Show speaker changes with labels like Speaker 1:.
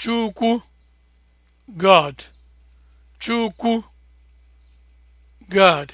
Speaker 1: Chukwu God Chukwu God